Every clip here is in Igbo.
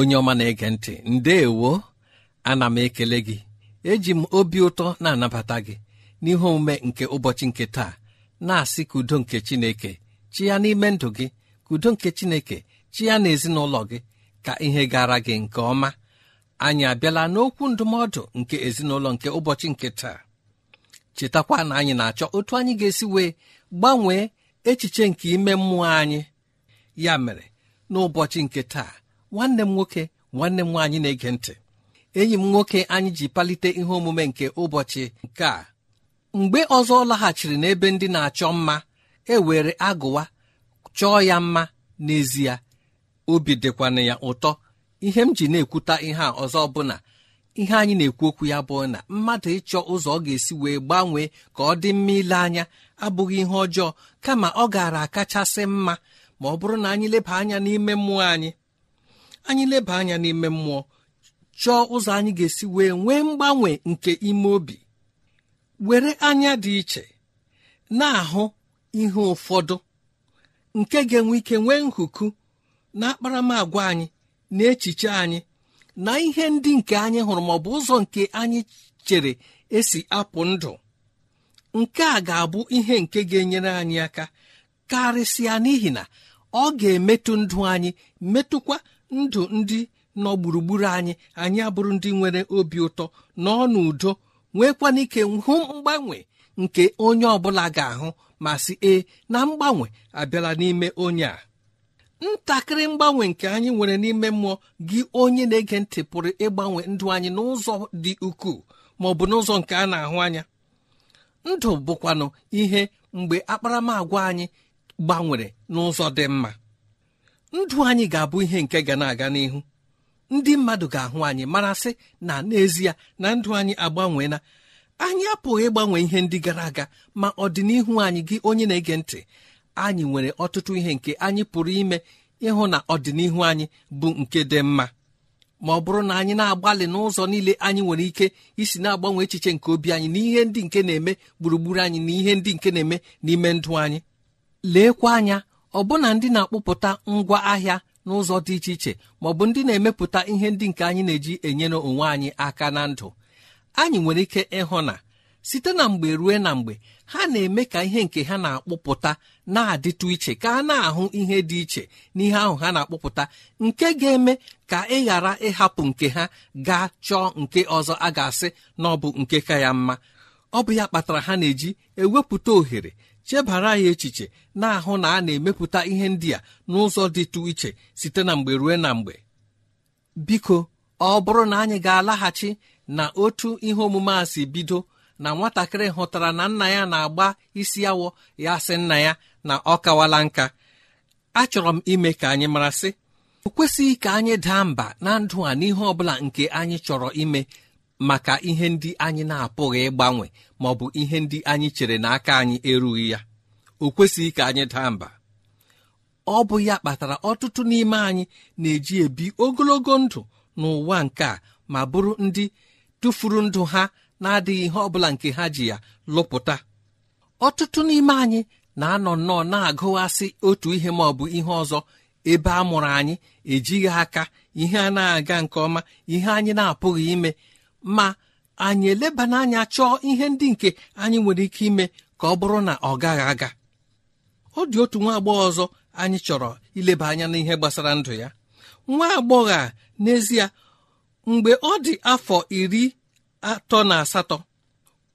onye ọma na-ege ntị ndeewo ana m ekele gị eji m obi ụtọ na-anabata gị n'ihe omume nke ụbọchị nke taa na-asị k'udo nke chineke chịa n'ime ndụ gị k'udo nke chineke chi ya na gị ka ihe gara gị nke ọma anyị abịala n'okwu ndụmọdụ nke ezinụlọ nke ụbọchị nke taa chetakwa na anyị na-achọ otu anyị ga-esi wee gbanwee echiche nke ime mmụọ anyị ya mere n'ụbọchị nke taa nwanne m nwoke nwanne m nwaanyị na-ege ntị enyi m nwoke anyị ji palite ihe omume nke ụbọchị nke a mgbe ọzọ ọ laghachiri n'ebe ndị na-achọ mma e were agụwa chọọ ya mma n'ezie obi dịkwana ya ụtọ ihe m ji na-ekwuta ihe a ọzọ bụ ihe anyị na-ekwu okwu ya bụ na mmadụ ịchọ ụzọ ọ ga-esi wee gbanwee ka ọ dị mma ile anya abụghị ihe ọjọọ kama ọ gaara akachasị mma ma ọ bụrụ na anyị leba anya n'ime mmụọ anyị anyị leba anya n'ime mmụọ chọọ ụzọ anyị ga-esi wee nwee mgbanwe nke ime obi were anya dị iche na-ahụ ihe ụfọdụ nke ga-enwe ike nwee nhuku na akparamagwa anyị na echiche anyị na ihe ndị nke anyị hụrụ ma ọ bụ ụzọ nke anyị chere esi apụ ndụ nke a ga-abụ ihe nke ga-enyere anyị aka karịsịa n'ihi na ọ ga-emetụ ndụ anyị metụkwa ndụ ndị nọ gburugburu anyị anyị abụrụ ndị nwere obi ụtọ n'ọ n'udo nwekwana ike hụ mgbanwe nke onye ọbụla ga-ahụ ma sị ee na mgbanwe abịala n'ime onye a ntakịrị mgbanwe nke anyị nwere n'ime mmụọ gị onye na-ege ntị pụrụ ịgbanwe ndụ anyị n'ụzọ dị ukwuu ma ọ bụ n'ụzọ nke a na-ahụ anya ndụ bụkwanụ ihe mgbe akparamagwa anyị gbanwere n'ụzọ dị mma ndụ anyị ga-abụ ihe nke ga na-aga n'ihu ndị mmadụ ga-ahụ anyị marasị na n'ezie na ndụ anyị agbanweela anyị apụghị ịgbanwe ihe ndị gara aga ma ọdịnihu anyị gị onye na-ege ntị anyị nwere ọtụtụ ihe nke anyị pụrụ ime ịhụ na ọdịnihu anyị bụ nke dị mma ma ọ bụrụ na anyị na-agbalị n'ụzọ niile anyị nwere ike isi na-agbanwe echiche nke obi anyị na ihe ndị nke na-eme gburugburu anyị na ihe ndị nke na-eme n'ime ndụ anyị leekwa anya ọbụna ndị na-akpụpụta ngwa ahịa n'ụzọ dị iche iche ma ọ bụ ndị na-emepụta ihe ndị nke anyị na-eji enyere onwe anyị aka na ndụ anyị nwere ike ịhụ na site na mgbe rue na mgbe ha na-eme ka ihe nke ha na-akpụpụta na-adịtụ iche ka a na-ahụ ihe dị iche n'ihe ahụ ha na-akpụpụta nke ga-eme ka ị ghara ịhapụ nke ha gaa chọọ nke ọzọ a ga-asị na ọ bụ nke ka ya mma ọ bụ ya kpatara ha na-eji ewepụta ohere chebara ya echiche na-ahụ na a na-emepụta ihe ndị a n'ụzọ dịtụ iche site na mgbe ruo na mgbe biko ọ bụrụ na anyị ga-alaghachi na otu ihe omume a si bido na nwatakịrị hụtara na nna ya na-agba isi awọ ya sị nna ya na ọ kawala nka achọrọ m ime ka anyị mara sị o kwesịghị ka anyị daa mba na ndụ a n'ihe ọ nke anyị chọrọ ime maka ihe ndị anyị na-apụghị ịgbanwe ma ọ bụ ihe ndị anyị chere n'aka anyị erughị ya o kwesịghị ka anyị daa mba ọ bụ ya kpatara ọtụtụ n'ime anyị na-eji ebi ogologo ndụ n'ụwa nke a ma bụrụ ndị tụfuru ndụ ha na-adịghị ihe ọ bụla nke ha ji ya lụpụta ọtụtụ n'ime anyị na-anọ nnọọ na-agụghasị otu ihe ma ọ bụ ihe ọzọ ebe a mụrụ anyị ejighị aka ihe a na-aga nke ọma ihe anyị na-apụghị ime ma anyị eleba n'anya chọọ ihe ndị nke anyị nwere ike ime ka ọ bụrụ na ọ gaghị aga ọ dị otu nwa agbọghọ ọzọ anyị chọrọ ileba anya n'ihe gbasara ndụ ya nwa agbọghọ a n'ezie mgbe ọ dị afọ iri atọ na asatọ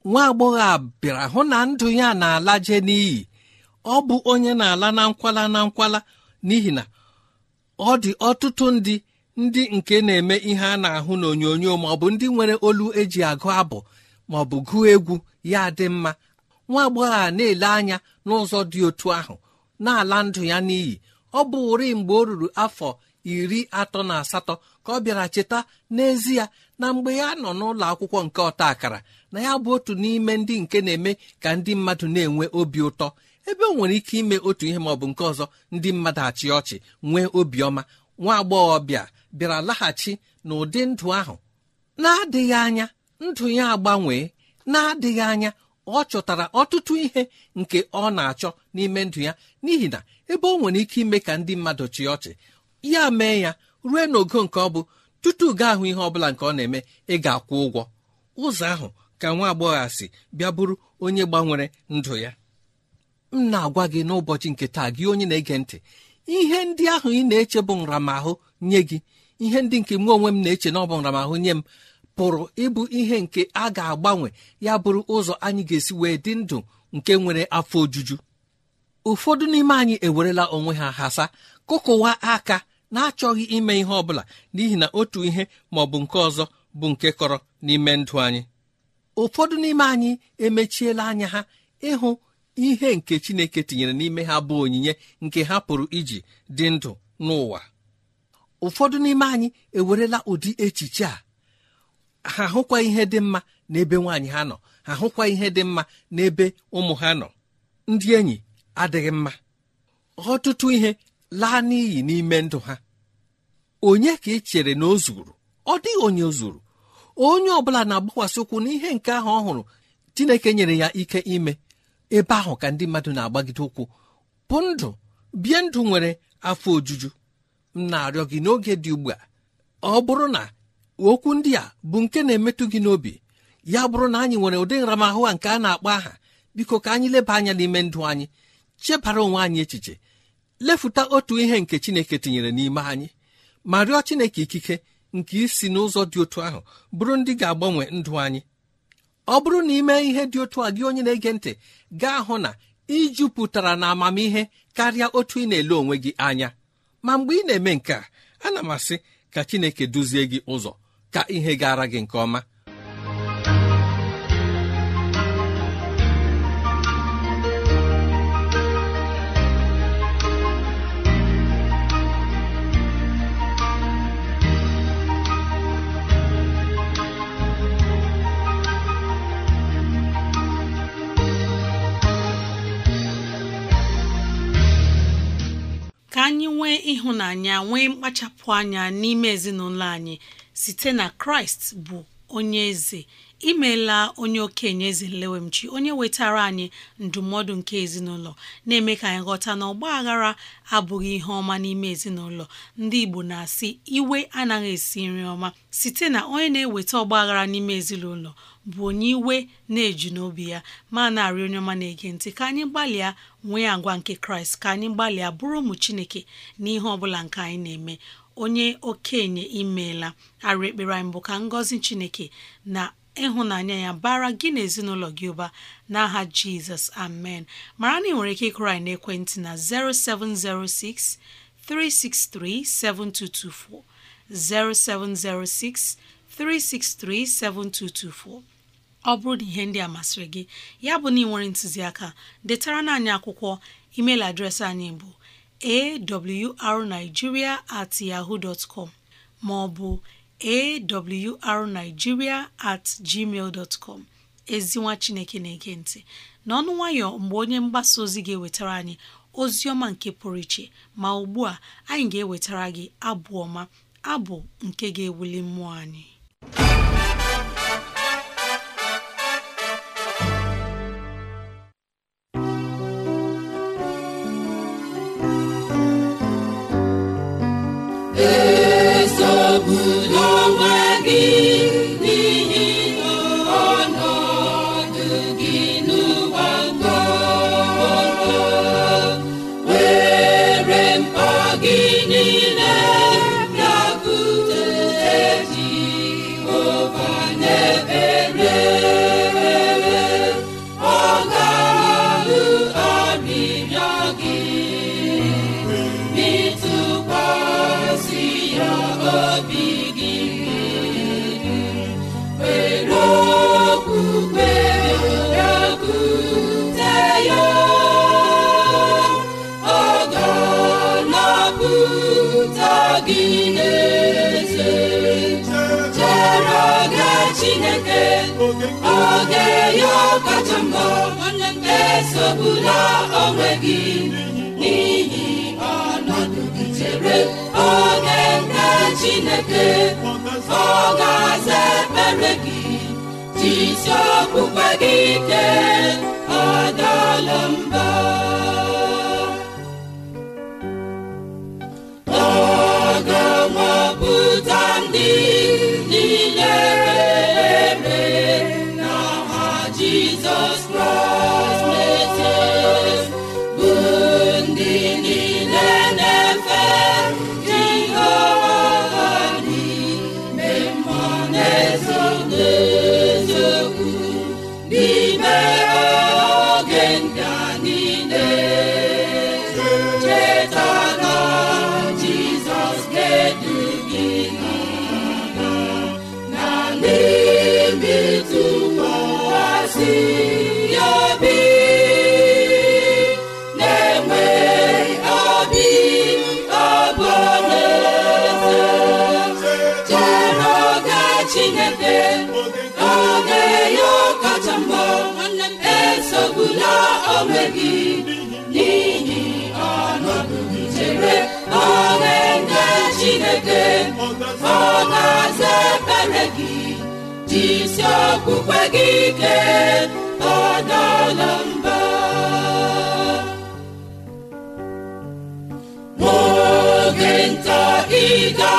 nwa agbọghọ a bịara hụ na ndụ ya na-alaje n'iyi ọ bụ onye na-ala na nkwala na nkwala n'ihi na ọ dị ọtụtụ ndị ndị nke na-eme ihe a na-ahụ n'onyonyo ma ọ bụ ndị nwere olu eji agụ abụ ma ọ bụ gụọ egwu ya dị mma nwa agbọghọ a na-ele anya n'ụzọ dị otu ahụ na-ala ndụ ya n'iyi ọ bụ ụri mgbe o ruru afọ iri atọ na asatọ ka ọ bịara cheta n'ezie na mgbe ya nọ n'ụlọ akwụkwọ nke ọta akara na ya bụ otu n'ime ndị nke na-eme ka ndị mmadụ na-enwe obi ụtọ ebe o nwere ike ime otu ihe ma ọ bụ nke ọzọ ndị mmadụ achị ọchị nwee obiọma nwa agbọghọbịa bịara laghachi n'ụdị ndụ ahụ na-adịghị anya ndụ ya agbanwee na-adịghị anya ọ chọtara ọtụtụ ihe nke ọ na-achọ n'ime ndụ ya n'ihi na ebe ọ nwere ike ime ka ndị mmadụ chịa ọchị ya mee ya rue n'ogo nke ọ bụ tutu gaa ahụ ihe bụla nke ọ na-eme ị ga-akwụ ụgwọ ụzọ ahụ ka nwa agbọghọ si bịa bụrụ onye gbanwere ndụ ya m na-agwa gị n'ụbọchị nke taa gị onye na-ege ntị ihe ndị ahụ ị na-eche bụ nramahụ nye gị ihe ndị nke mụ onwe m na-eche na ọbụramahụ nye m pụrụ ịbụ ihe nke a ga-agbanwe ya bụrụ ụzọ anyị ga-esi wee dị ndụ nke nwere afọ ojuju ụfọdụ n'ime anyị ewerela onwe ha hasa kụkụwa aka na-achọghị ime ihe ọbụla n'ihi na otu ihe ma ọ bụ nke ọzọ bụ nke kọrọ n'ime ndụ anyị ụfọdụ n'ime anyị emechiela anya ha ịhụ ihe nke Chineke tinyere n'ime ha bụ onyinye nke ha pụrụ iji dị ndụ n'ụwa ụfọdụ n'ime anyị ewerela ụdị echiche a ha hụkwa ihe dị mma n'ebe nwaanyị ha nọ ha hụkwa ihe dị mma n'ebe ụmụ ha nọ ndị enyi adịghị mma ọtụtụ ihe laa n'iyi n'ime ndụ ha onye ka ị chere na o zuru ọ dịghị onye zuru onye ọ bụla na-agbakwasị ụkwụ n'ihe nke ahụ ọ hụrụ Chineke nyere ya ike ime ebe ahụ ka ndị mmadụ na-agbagide ụkwụ bụ ndụ bie ndụ nwere afọ ojuju m na-arịọ gị n'oge dị ugbu a ọ bụrụ na okwu ndị a bụ nke na-emetụ gị n'obi ya bụrụ na anyị nwere ụdị nramahụ a nke a na-akpọ aha biko ka anyị leba anya n'ime ndụ anyị chebara onwe anyị echiche lefuta otu ihe nke Chineke tinyere n'ime anyị ma rịọ Chineke ikike nke isi n'ụzọ dị otu ahụ bụrụ ndị ga-agbanwe ndụ anyị ọ bụrụ na ime ihe dị otu a gị onye na-ege ntị gaa hụ na ijupụtara na amamihe karịa otu ị na-ele onwe gị anya ma mgbe ị na-eme nke a ana m asị ka chineke duzie gị ụzọ ka ihe gara gị nke ọma ịhụnanya nwee mkpachapụ anya n'ime ezinụlọ anyị site na kraịst bụ onye eze Imela onye okenye eze nlewemchi onye wetara anyị ndụmọdụ nke ezinụlọ na-eme ka anyị ghọta na ọgba aghara abụghị ihe ọma n'ime ezinụlọ ndị Igbo na-asị iwe anaghị esi nri ọma site na onye na-eweta ọgba aghara n'ime ezinụlọ bụ onye iwe na-eji n'obi ya ma na-arị onye ọma na-ege ntị ka anyị gbalịa nwee agwa nke kraịst ka anyị gbalịa bụrụ ụmụ chineke n'ihe ọ bụla nke anyị na-eme onye okenye imeela arụ ekpere anyị bụ ka ngọzi chineke na ịhụnanya ya bara gị na ezinụlọ gị ụba n'aha jizọs amen mara na ị nwere ike ịkụrị anyị n'ekwentị na 0706 363 7224 0706 363 7224 ọ bụrụ na ihe ndị a masịrị gị ya bụ na ị nwere ntụziaka detara na anyị akwụkwọ email adreesị anyị bụ awrnigeria at yaho maọbụ ma ọ bụ at gmail dot com ezinwa chineke na-ege ntị n'ọnụ nwayọ mgbe onye mgbasa ozi ga-ewetara anyị ozi ọma nke pụrụ iche ma ugbu a anyị ga-ewetara gị abụ ọma abụ nke ga-ewuli mmụọ anyị Hey. esogbula onwe gị n'ihi ọnọdụ gị chere oge nke Chineke ọ ga-aza ekpere gị jisi okwukwe gị ike ọ dọọla mba egbula onwe gị n'ihi ọnọdụ chere oge nne chineke ọ ga-aza ekpere gị jisi okpukpe gị ike ọdala mba n'oge nta ị ga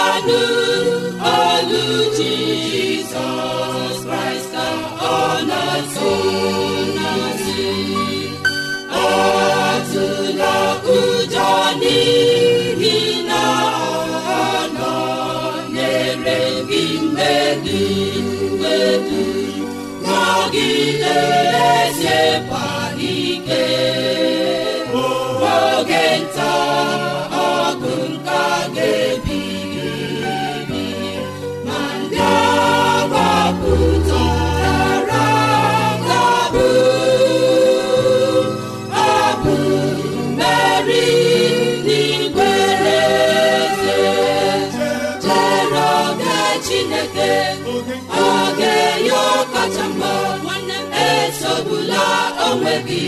gị eze onwe gị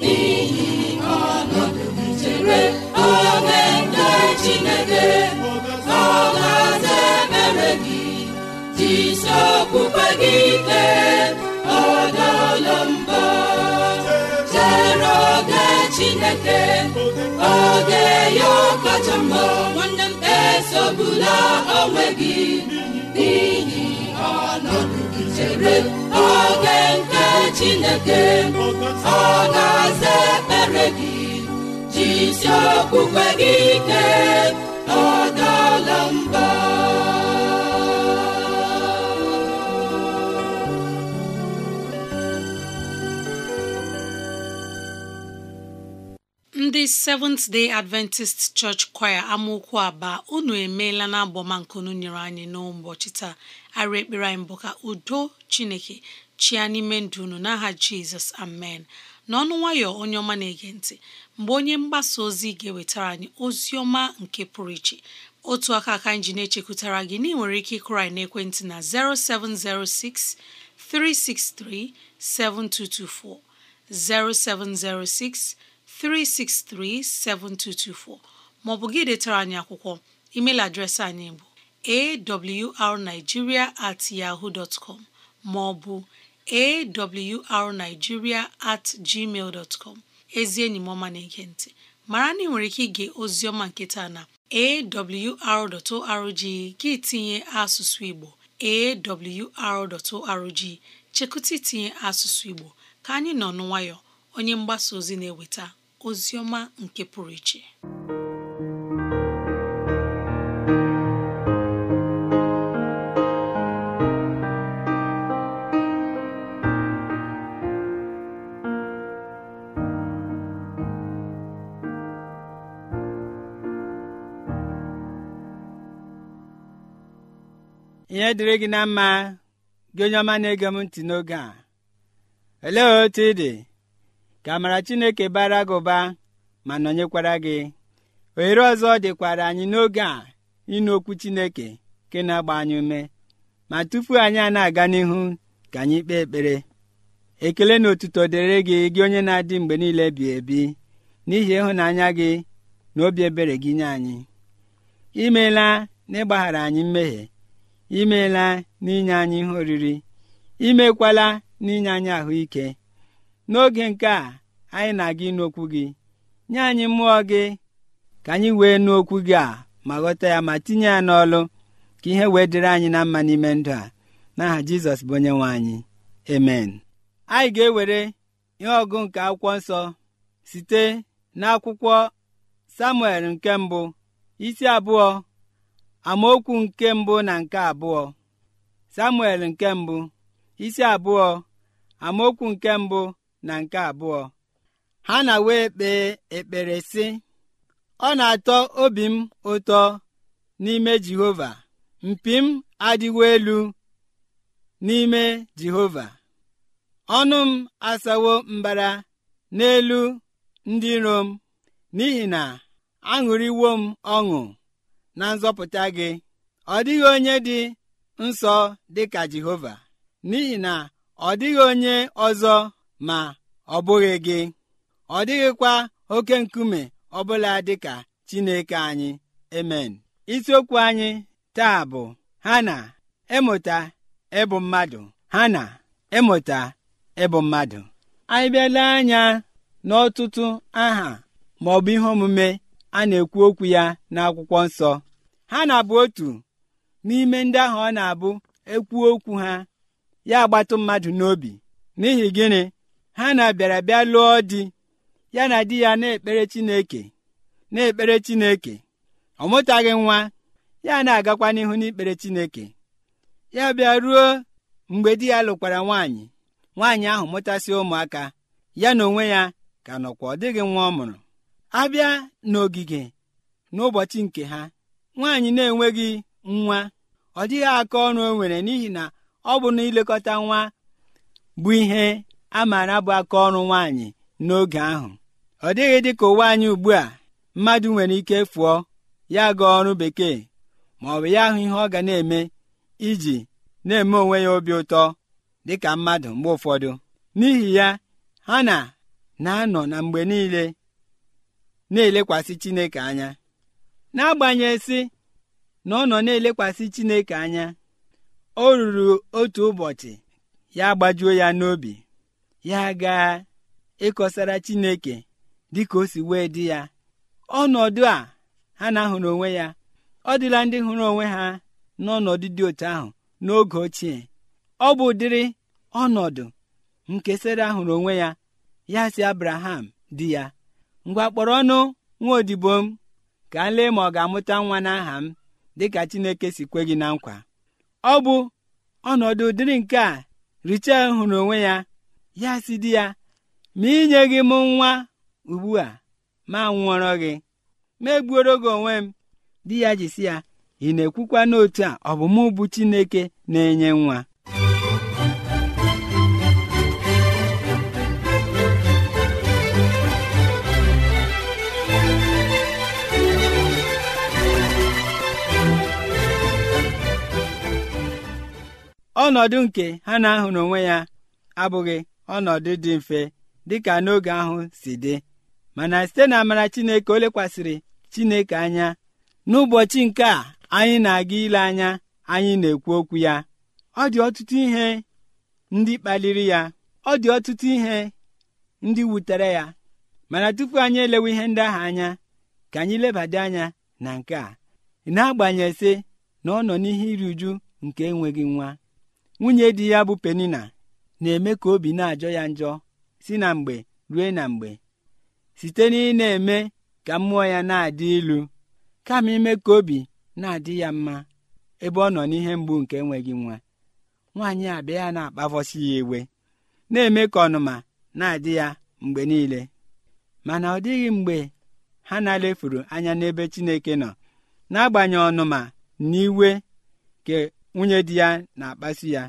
n'ihi ọnọdụ chere oge nke Chineke ọ ga gị jisi okpukpe gị ike ọ dọọla chere oge Chineke oge ya kacha mma nwanne m esogbula onwe gị n'ihi ọnọdụ chere oge nke chineke ọ ga-aza ekpere gị jisi okwukwe gị ike ọ dala mba ndị seventh day adventist church choir amaokwu aba unu emeela na agbọma nkunu nyere anyị n'ụbọchị taa arịa ekpere anyị bụ ka udo chineke chia n'ime ndụ unu n'aha jizọs amen n'ọnụ nwayọ onye ọma na-ege ntị mgbe onye mgbasa ozi ga-ewetara anyị ozi ọma nke pụrụ iche otu aka aka anyị ji na-echekwutara gị na ị nwere ike ịkụrụ anyị n'ekwentị na 0706 363 7224 maọbụ gị detara anyị akwụkwọ email adreesị anyị bụ awrnigeria at yahoo dot com ma ọ bụ at gmail dot ezi enyi m na-ege ntị mara na ị nwere ike ige ozioma nke taa na awr.org gị tinye asụsụ Igbo awr.org chekụta itinye asụsụ Igbo ka anyị nọ n'nwayọ onye mgbasa ozi na-eweta ozi nke pụrụ iche ihe dịrị gị na mma gị onye ọma na-ege m ntị n'oge a olee otu ị dị ka amara Chineke bara gị ụba ma nọnyekwara gị ohere ọzọ dịkwara anyị n'oge a ịnụ okwu Chineke nke na-agba anyị ume ma tupu anyị a na-aga n'ihu ka anyị kpee ekpere ekele na otuto dịrị gị gị onye na-adị mgbe niile bi ebi n'ihi ịhụnanya gị na obi ebere gị nye anyị imeela na ịgbaghara anyị mmehie imeela n'inye anyị ihe oriri imekwala n'inye anyị ahụike n'oge nke a anyị na-aga ịnụ gị nye anyị mmụọ gị ka anyị wee nụ okwu gị a ma ghọta ya ma tinye ya n'ọlụ ka ihe wee dịrị anyị na mma n'ime ndụ a n'aha jizọs bụ onye nwe anyị emen anyị ga-ewere ihe ọgụ nke akwụkwọ nsọ site n'akwụkwọ samuel nke mbụ isi abụọ amaokwu nke mbụ na nke abụọ samuel nke mbụ isi abụọ amaokwu nke mbụ na nke abụọ ha na wee kpee ekpere sị ọ na-atọ obi m ụtọ n'ime jehova mpi m adịwo elu n'ime jehova ọnụ m asawo mbara n'elu ndị iro m n'ihi na aṅụrịwo m ọṅụ na nzọpụta gị ọ dịghị onye dị nsọ dị ka Jehova n'ihi na ọ dịghị onye ọzọ ma ọ bụghị gị ọ dịghịkwa oke nkume ọbụla dị ka Chineke anyị emen isiokwu anyị taa bụ ha na ịmụta ịbụ mmadụ ha na ịmụta ịbụ mmadụ anyị bịala anya n'ọtụtụ aha ma ihe omume a na-ekwu okwu ya n'akwụkwọ nsọ ha na-abụ otu n'ime ndị ahụ ọ na-abụ ekwuo okwu ha ya agbatụ mmadụ n'obi n'ihi gịnị ha na-abịara bịa lụọ di ya na di ya na-ekpere Chineke na-ekpere Chineke ọ mụtaghị nwa ya na-agakwa n'ihu n'ikpere Chineke ya bịa ruo mgbe di ya lụkwara nwaanyị nwaanyị ahụ mụtasị ụmụaka ya na onwe ya ka nọkwa ọ dịghị nwa ọ mụrụ abịa n'ogige n'ụbọchị nke ha nwaanyị na-enweghị nwa ọ dịghị aka ọrụ o nwere n'ihi na ọ bụ na ilekọta nwa bụ ihe a maara bụ aka ọrụ nwaanyị n'oge ahụ ọ dịghị dị ka ụwa anyị ugbu a mmadụ nwere ike fụọ ya gaa ọrụ bekee ma ọ bụ ya ahụ ihe ọ ga na-eme iji na-eme onwe ya obi ụtọ dị ka mmadụ mgbe ụfọdụ n'ihi ya ha na na-anọ na mgbe niile na-elekwasị Chineke anya n'agbanyeghị si na ọ nọ na-elekwasị chineke anya o ruru otu ụbọchị ya gbajuo ya n'obi ya gaa ịkọsara chineke dịka o si wee dị ya ọnọdụ a ha na-ahụrụ onwe ya ọ dịla ndị hụrụ onwe ha n'ọnọdụ dị otu ahụ n'oge ochie ọ bụ ụdịrị ọnọdụ nke sara onwe ya ya si Abraham di ya ngwa kpọrọ ọnụ nwa odibo m ka m lee ma ọ ga-amụta nwa n'aha m dịka Chineke si kwe gị na nkwa ọ bụ ọnọdụ dịrị nke a Richel hụrụ onwe ya ya si di ya ma inye gị m nwa ugbu a ma nwụọrọ gị ma egbuoro gị onwe m di ya jisi ya ị na-ekwukwa n'otu a ọ bụ Chineke na-enye nwa ọnọdụ nke ha na-ahụ n'onwe ya abụghị ọnọdụ dị mfe dịka n'oge ahụ si dị mana site na amara Chineke o lekwasịrị Chineke anya n'ụbọchị nke a anyị na-aga ile anya anyị na-ekwu okwu ya ọ dị ọtụtụ ihe ndị kpaliri ya ọ dị ọtụtụ ihe ndị wutere ya mana tupu anyị elewe ihe ndị ahụ anya ka anyị lebada anya na nke a na agbanyesị sị na ọ nọ n'ihe iri uju nke enweghị nwa nwunye di ya bụ penina na-eme ka obi na-ajọ ya njọ si na mgbe rue na mgbe site na ị na-eme ka mmụọ ya na-adị ilu kama ime ka obi na-adị ya mma ebe ọ nọ n'ihe mgbu nke enweghị nwa nwaanyị abịa ya na-akpavọsi ya iwe na-eme ka ọnụma na-adị ya mgbe niile mana ọ dịghị mgbe ha na alefuru anya n'ebe Chineke nọ n'agbanyeghị ọnụma na iwe nwunye di ya na-akpasu ya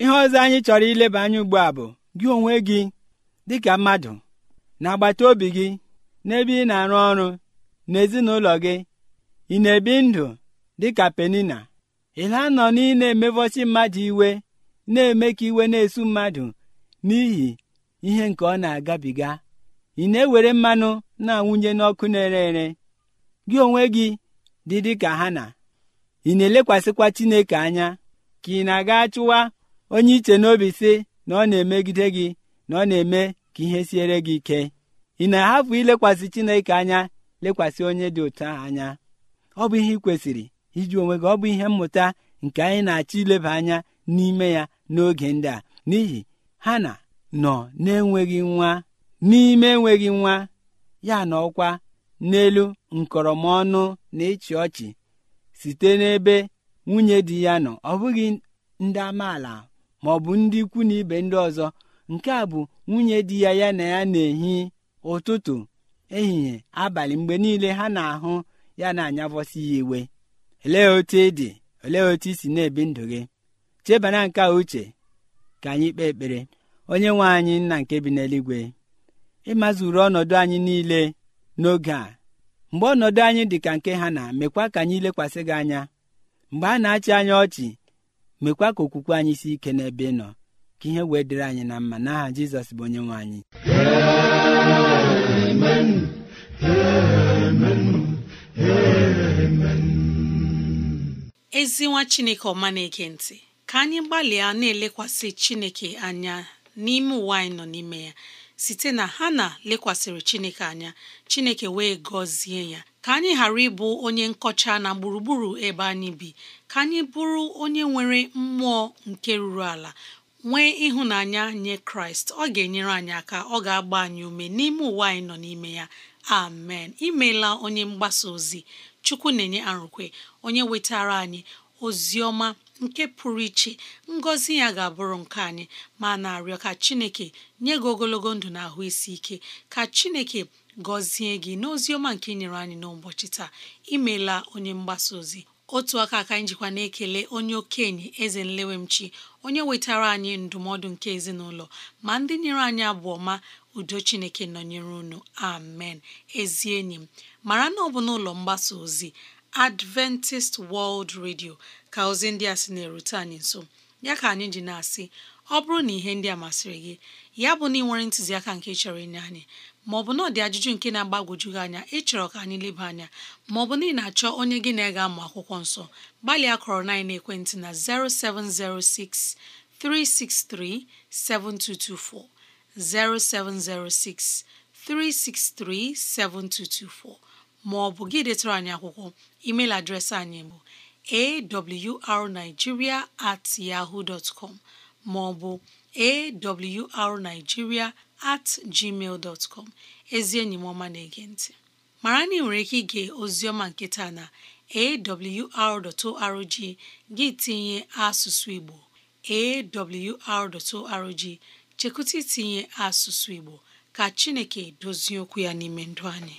ihe ọzọ anyị chọrọ ileba anya ugbu a bụ gị onwe gị dịka mmadụ na agbata obi gị n'ebe ị na-arụ ọrụ n'ezinụlọ gị ị na-ebi ndụ dịka penina ịla anọ na ị na-emevọsi mmadụ iwe na-eme ka iwe na-esu mmadụ n'ihi ihe nke ọ na-agabiga ị na-ewere mmanụ na-awụnye n'ọkụ na-ere ere gị onwe gị dị dịka ha na ị na-elekwasịkwa chineke anya ka ị na-aga chụwa onye iche n'obi sị na ọ na-emegide gị na ọ na-eme ka ihe siere gị ike ị na-ahapụ ilekwasị chineke anya lekwasị onye dị otu ahụ anya ọ bụ ihe ị kwesịrị iji onwe gị ọ bụ ihe mmụta nke anyị na-achọ ileba anya n'ime ya n'oge ndị a n'ihi ha na nọ na-enweghị nwa n'ime enweghị nwa ya na ọkwa n'elu nkọrọmọnụ na ịchị ọchị site n'ebe nwunye di ya nọ ọ bụghị ndị amaala ma ọ bụ ndị ikwu na ibe ndị ọzọ nke a bụ nwunye di ya ya na ya na-ehi ụtụtụ ehihie abalị mgbe niile ha na-ahụ ya na-anyavọsi ya iwe olee otu ị dị olee otu i si na-ebi ndụ gị chebana nke a uche ka anyị kpee ekpere onye nwe anyị nna nke bi n'eluigwe ịmazuru ọnọdụ anyị niile n'oge a mgbe ọnọdụ anyị dị ka nke ha na mekwa ka anyị lekwasị gị anya mgbe a na-achị anya ọchị mekwa ka okwukwe anyị si ike n'ebe ị nọ ka ihe wee dịrị anyị na mma n'aha jizọs bụ onye nwe anyị ezi nwa chineke ọma na-ege ntị ka anyị gbalịa na-elekwasị chineke anya n'ime ụwa anyị nọ n'ime ya site na ha na lekwasịrị Chineke anya Chineke wee gọzie ya ka anyị ghara ịbụ onye nkọcha na gburugburu ebe anyị bi ka anyị bụrụ onye nwere mmụọ nke ruru ala nwee ịhụnanya nye Kraịst ọ ga-enyere anyị aka ọ ga-agba anyị ume n'ime ụwa anyị nọ n'ime ya amen imeela onye mgbasa ozi Chukwu na-enye arụkwe onye wetara anyị ozi ọma nke pụrụ iche ngọzi ya ga-abụrụ nke anyị ma na-arịọ ka chineke nye gị ogologo ndụ na ahụ isi ike ka chineke gọzie gị n'ozi ọma nke nyere anyị n'ụbọchị taa imela onye mgbasa ozi otu aka aka njikwa na-ekele onye okenye eze nlewemchi onye wetara anyị ndụmọdụ nke ezinụlọ ma ndị nyere anyị abụ ọma udo chineke nọnyere unu amen ezi enyi m mara na ọ bụ n'ụlọ mgbasa ozi Adventist World Radio ka ozi ndị a sị na-erute anyị nso ya ka anyị ji na-asị ọ bụrụ na ihe ndị a masịrị gị ya bụ na ị nwere ntụziaka nke chọrọ ịnye anyị maọbụ na ọ dị ajụjụ nke na-agbagwoju gị anya ịchọrọ ka anyị leba anya maọbụ na ị na-achọ onye gị na-ega amụ akwụkwọ nsọ gbalịa kọrọ na ekwentị na 0706 363 7224 0706 363 7224 maọbụ gị detara anyị akwụkwọ email adreesị anyị bụ awrnigeria at yahoo dot com maọbụ awrnigeria at gmail dot ezi enyi m ọma na-ege ntị mara na ị nwere ike ige oziọma nke taa na awr.org gị tinye asụsụ Igbo awr.org chekụta itinye asụsụ Igbo ka Chineke dozie okwu ya n'ime ndụ anyị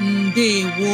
ndewo